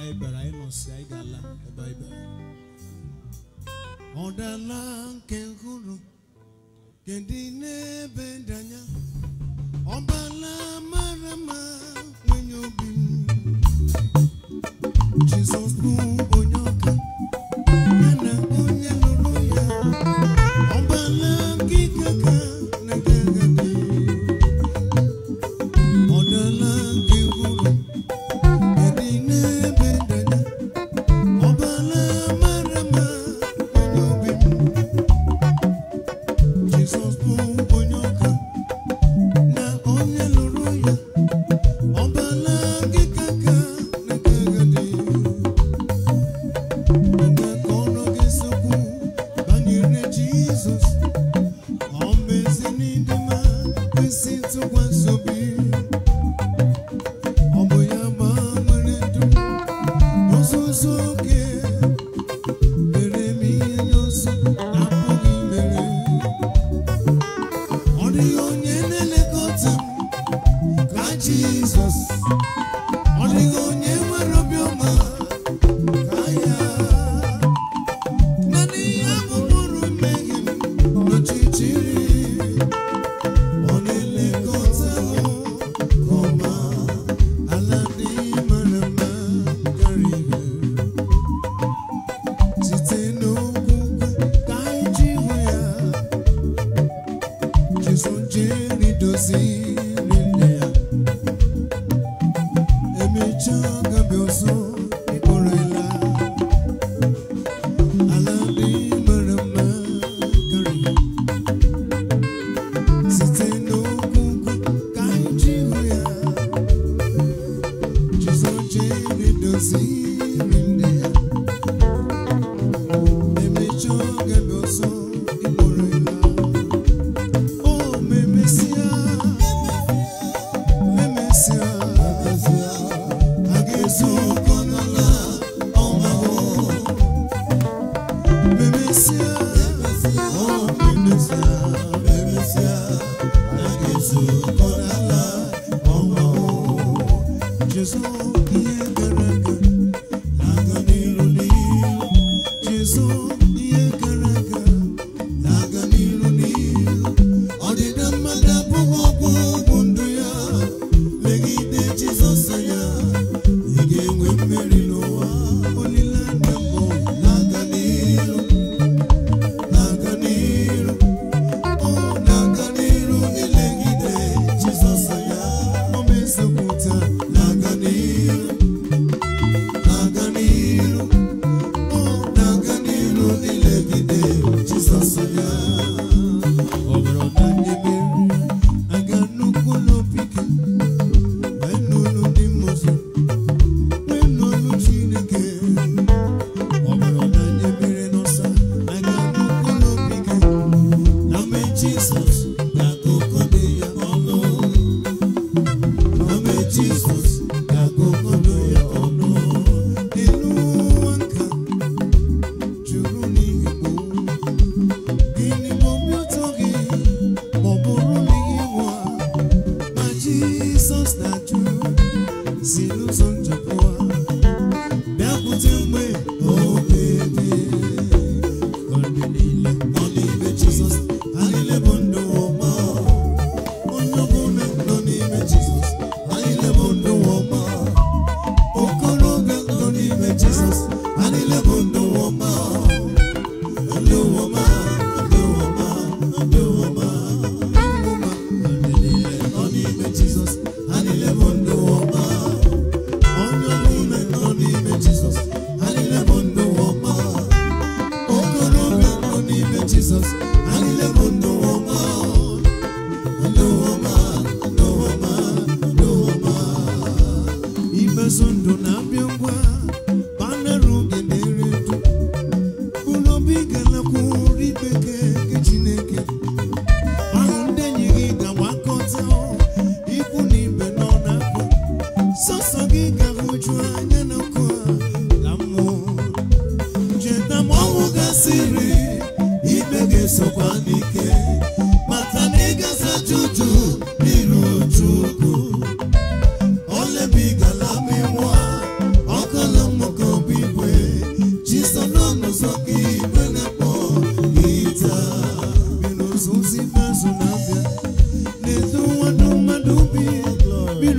anyị bịara anyị ga-ala ebe anyị bịara nke hụrụ kedu n'ebe dị anya ọbala mara nwenye nwere obi Jizọs bụ onye ọka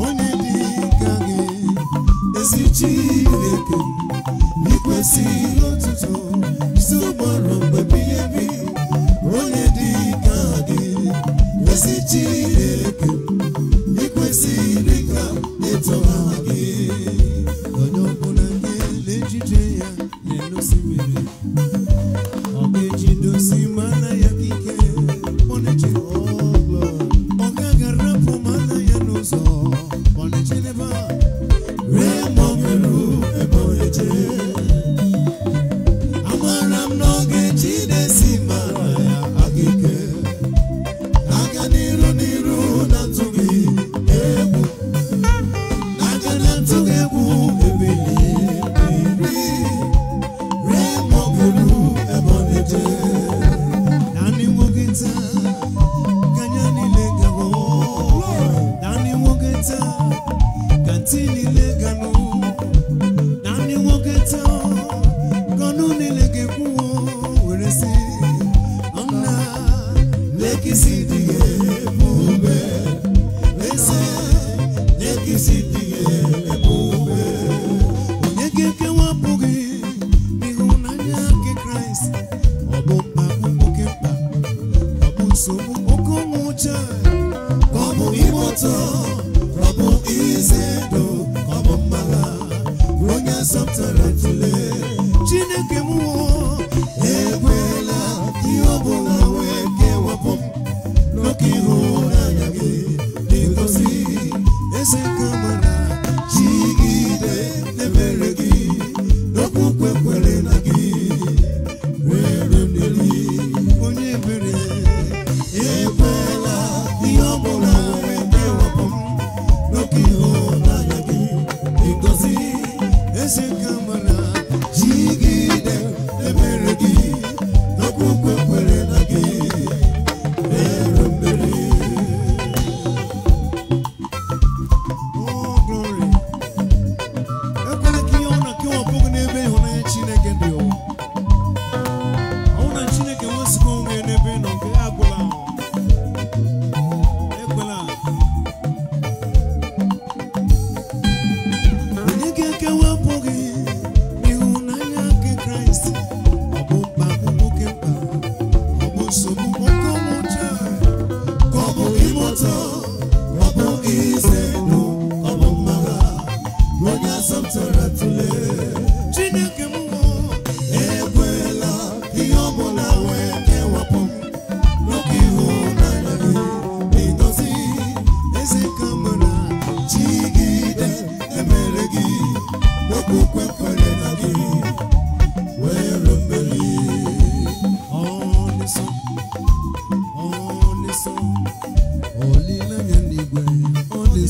onye dị ka gị ezi Chineke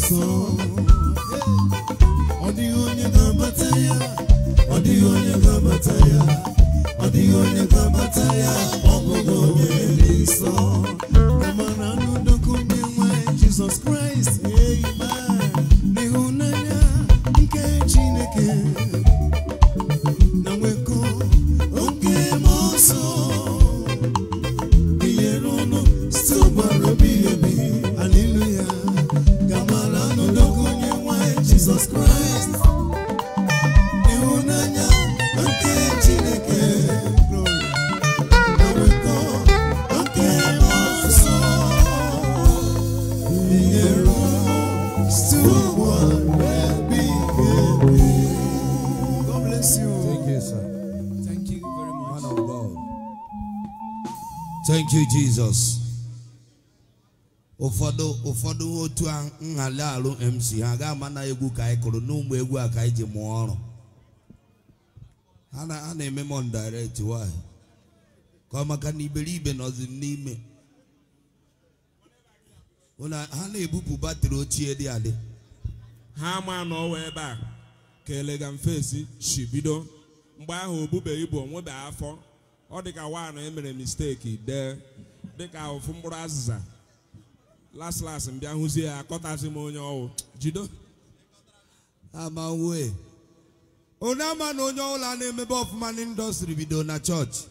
som. Thank you, Jesus. ụfọdụ ụfọdụ otu a nhali alụ MC ha ga-ama na egwu ka anyị kụrụ n'ụmụ egwu a ka anyị ji mụọ ọrụ ha na-eme m direct why ka ọ maka na iberibe nọzi n'ime ha na-ebupụ batrị ochie dị adị ha ama na ọwa ebe a ka elegant si bido mgbe ahụ obube ibu onwebe afọ ọ dịka wanụ emere misteki dee dịka ofu mkpụrụ azịza las las mbịa hụzie ya akọtazi m onye ọwụ jido amawe onye ama na onye ọbụla na-emebe ọfụma n'indọstrị bido na chọọchị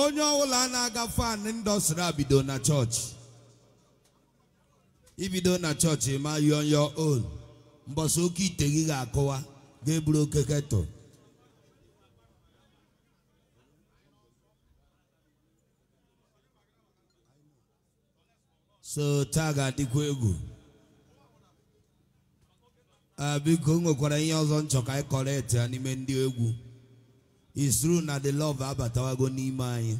onye ọbụla na-aga fan indọstrị a bido na chọọchị ibido na chọọchị ma yọọ on mbọsị oke ite gị ga-akụwa ga-eburu oke ketụl so taa ga-adịkwa egwu biko nwekwara ihe ọzọ nchọ ka anyị e kọrọ ya n'ime ndị egwu isru na the love abatawago n'ime anyị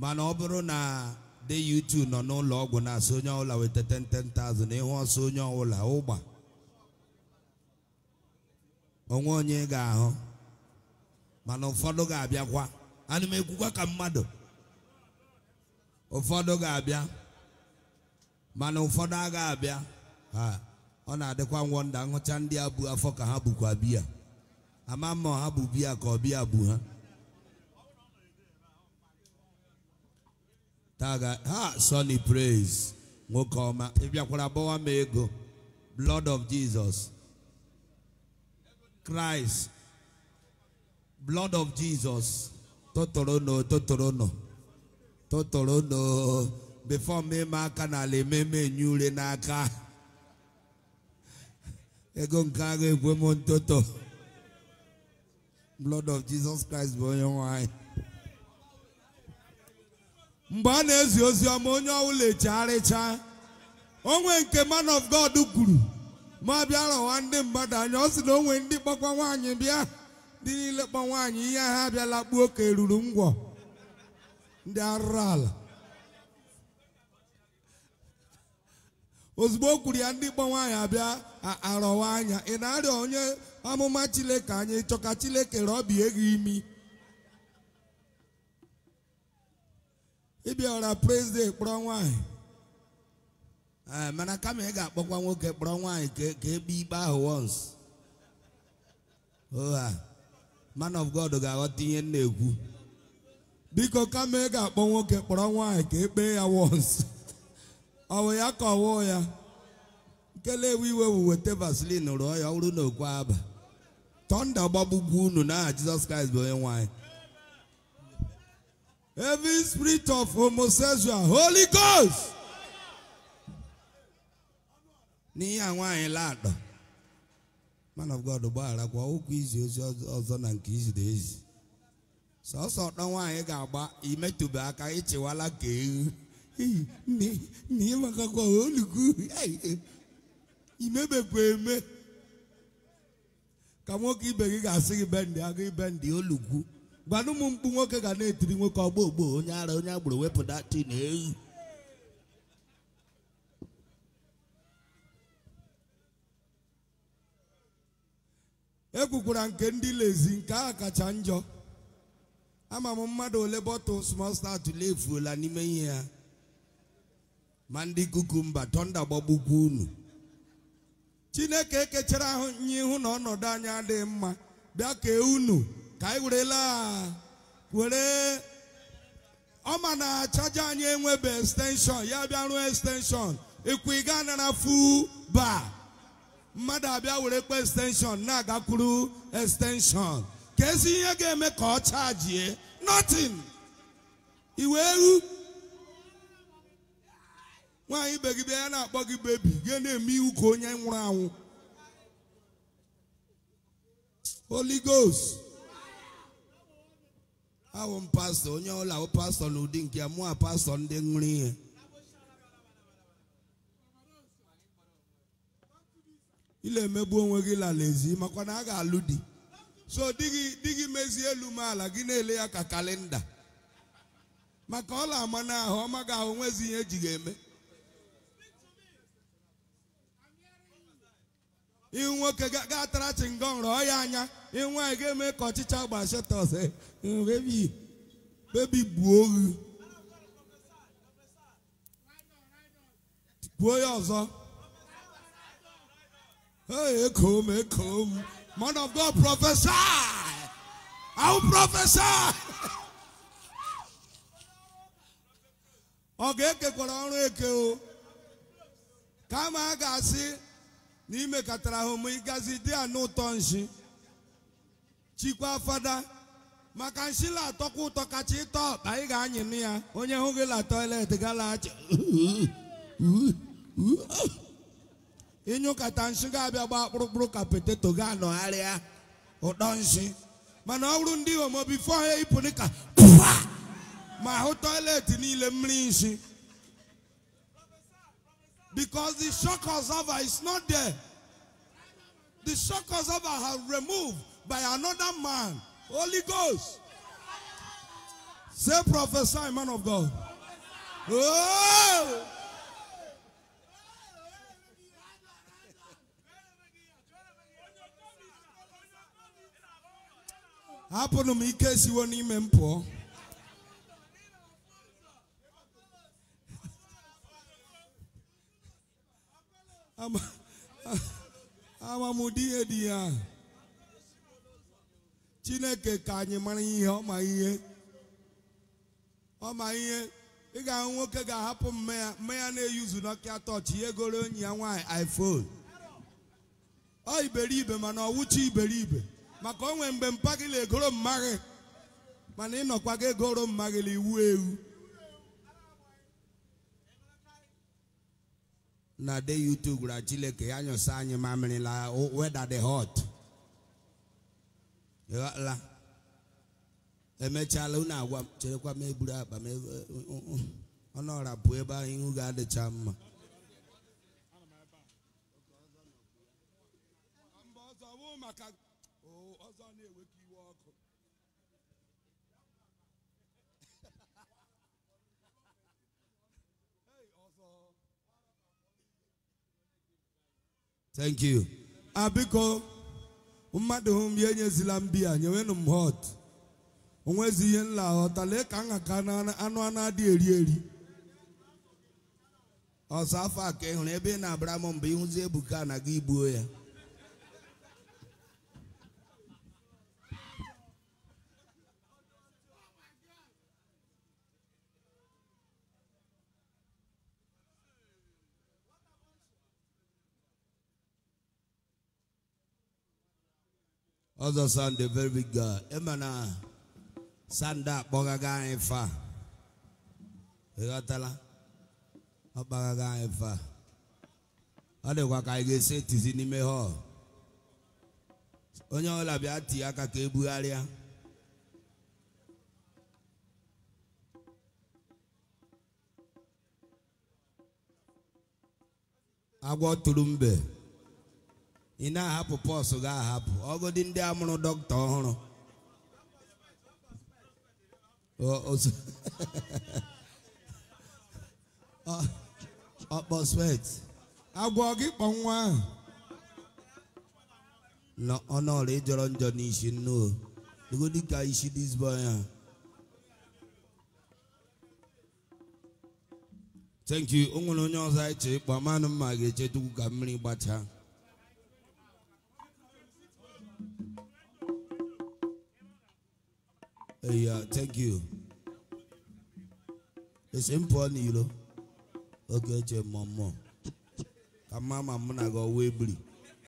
mana ọ bụrụ na de YouTube nọ n'ụlọ ọgwụ na-asị onye ọbụla weta 10,000 na ịhụ ọsọ onye ọbụla ụgba onwe onye ga-ahụ mana ụfọdụ ga-abịakwa ka mmadụ ụfọdụ ga-abịa mana ụfọdụ agha abịa ha ọ na-adịkwa ngwọnda nhụcha ndị a bụ afọ ka ha bụkwa biya ama mma ha bụ biya ka ọ biya bụ ha taga ha Sunny Praise nwoke ọma ịbịakwara bọwa m ego blood of Jesus Christ blood of Jesus tụtụrụ n'ụ totoro before mmemme aka n'ala ememe enye ure n'aka ego nke agha ekwe m ntoto blood of Jesus Christ bụ onye nwanyị mgbe a na-ezi ozi ọma onye ọbụla echegharịcha onwe nke man of God kwuru ma bịara ụwa ndị mmadụ anya ọ sị na onwe ndị kpọkwa nwaanyị ndị niile kpọ ihe ha abịala kpuo ka eruru ngwọ ndị arụrụ ala ozugbo o kwuru ya ndị gbanwe anyị abịa arọwa anya ị na-arịọ onye amụma Chineke anyị chọka Chineke rọbie gị imi ịbịara prezident kpọrọ nwaanyị e, mana kama ị ga-akpọkwa nwoke kpọrọ nwanyị ka egbe ikpe ahụ once oh, ah. man of God ga-aghọta ihe na-ekwu biko kama ị ga-akpọ nwoke kpọrọ nwanyị ka ekpee ya once ọ wụ ya ka ya. ya nkelewu iwe weta vaseline rụọ ya ọrụ na okwe aba tọnda gbagbugbu unu n'aha Jizọs Kraịst bụ onye nwanyị every spirit of homosexual holy ghost n'ihe a nwaanyị laadọ man of God gbaghara kwa okwu izi ozi ọzọ na nke iziri ezi sọsọ ọtọ nwaanyị ga-agba imetụbe aka ịchịwala ka na ihe makakwa olugu imebepụ eme ka nwoke ibe gị ga-asị gị bendị agụ ibendị olugwu gwana ụmụ mkpu nwoke ga na-etiri nwoke ọgbọ ogbo onye ara onye agbụrụ wepụta tin ewu ekwukwara nke ndị lezi nke ahụ kacha njọ ama m mmadụ ole bọtụl small start lefuola n'ime ihe ya ma ndị kukumba tọnda gbagbukwu unu chineke ekechara ahụ nye ihu na ọnọdụ anyị adịghị mma bịa kee unu ka anyị werela were ma na chaja anyị enwebe estenshọn ya bịa rụọ estenshọn ịkwụ ịga anara fu ba mmadụ abịa were kpe estenshọn na-agakwuru estenshọn ka ezi ihe ga-eme ka ọ chajie notin iwe ehu nwaanyị ibe gị bịa ya na-akpọ gị bebi gị na-eme iwu ka onye nwụrụ anwụ Holy Ghost awụ m pastọ onye ọla awụ pastọ n'ụdị nke ya mụa pastọ ndị ṅụrụ ihe ile emegbu onwe gị lala ezi makwa na a ga-alụ di so di gị di gị mezie elu m ala gị na-ele ya ka kalenda maka ọla ama n'ahụ ọma ga ahụ nwezi ihe eji ga-eme ihu nwoke ga tara chingom rọọ ya anya ihu nwaanyị ga-eme ka ọchịcha gbashetọs bebi gbuo oghu gbuo ya ọzọ ekom ekom man of god prophesy i will prophesy ọ ga-ekekwara ọrụ eke o kama a ga-asị n'ime katara ahụ m ịgazi dị anụ ụtọ nshi chikwa fada maka nsila la-atọkwa ụtọ kacha ịtọ ọkpa ị ga na ya onye hụ gị la toilet gala acha ịnyụkata nshi ga-abịa gbaa kpụrụkpụrụ ka poteto ga-anọgharịa ụtọ nshi mana ọ bụrụ ndị homo bifo ha ma hụ toilet niile mmiri nshi Because the shock observer is not there. The shock observer has removed by another man. Holy Ghost. Say prophesy, man of God. Oh! to me, case you siwo n'ime m pụọ. amamụdị ihe dị ya chineke ka anyị mara ihe ọ ma ihe ọ ma ihe ị ga-ahụ nwoke ga-ahapụ mmanya ya na-eyuzu n'ọkịa tọchị ihe goro onye ya nwaanyị iphone ọ iberibe mana ọwụchi iberibe maka o nwee mgbe na egoro mmaghị mana ịnọkwa ga egoro na-ewu iwu ewu na de YouTube gwara Chileke ya nyụsa anyị mamịrị la weda dị hot ịghọtala emechala unu agwa m cherekwa m eburu akpa m ọnụ eh, ọra pụọ ebe ahụ ihu ga-adịcha mma maka ọzọ oh, na-ewekọ iwe ọkụ Thank Abiko, mmadụ hụ m ya enyezila m biya nyewenụ m hot. onwezi ihe nla aghọta lee ka nha anụ anụ a na-adịghị eri eri ọsọ afọ a ka ị hụrụ ebe ị na-abara m mgbe ịhụzi ebuka na gị igbuo ya ọzọ sande very big na akpọgaga anyị fa ịghọtala ọ kpagaga anyị e fa ọ dịkwa ka anyị ga-esi etizi n'ime onye ọbụla bịa tie aka ka ebugharịa agwọ tụrụ mbe ị na-ahapụ pọsụ ga-ahapụ ọgụdị ndị amụrụ dọkịta ọhụrụ ọkpọswet agwọ gị kpọ nwa ahụ ịjọrọ njọ n'isi nnu dịgodị ka isi dizbọy ya thank you o nwere onye ọzọ anyị chee ịkpọ manụ mma ga-eche tupu ka mmiri gbachaa thank you esi m pụọ n'iro oge eche mmụọ mmụọ ka mma ma mụ na gị ọwa